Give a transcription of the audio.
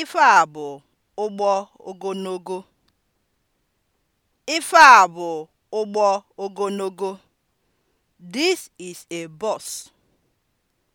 Ife a bụ ụgbọ ogonogo Ife a bụ ụgbọ ogonogo This is a bus.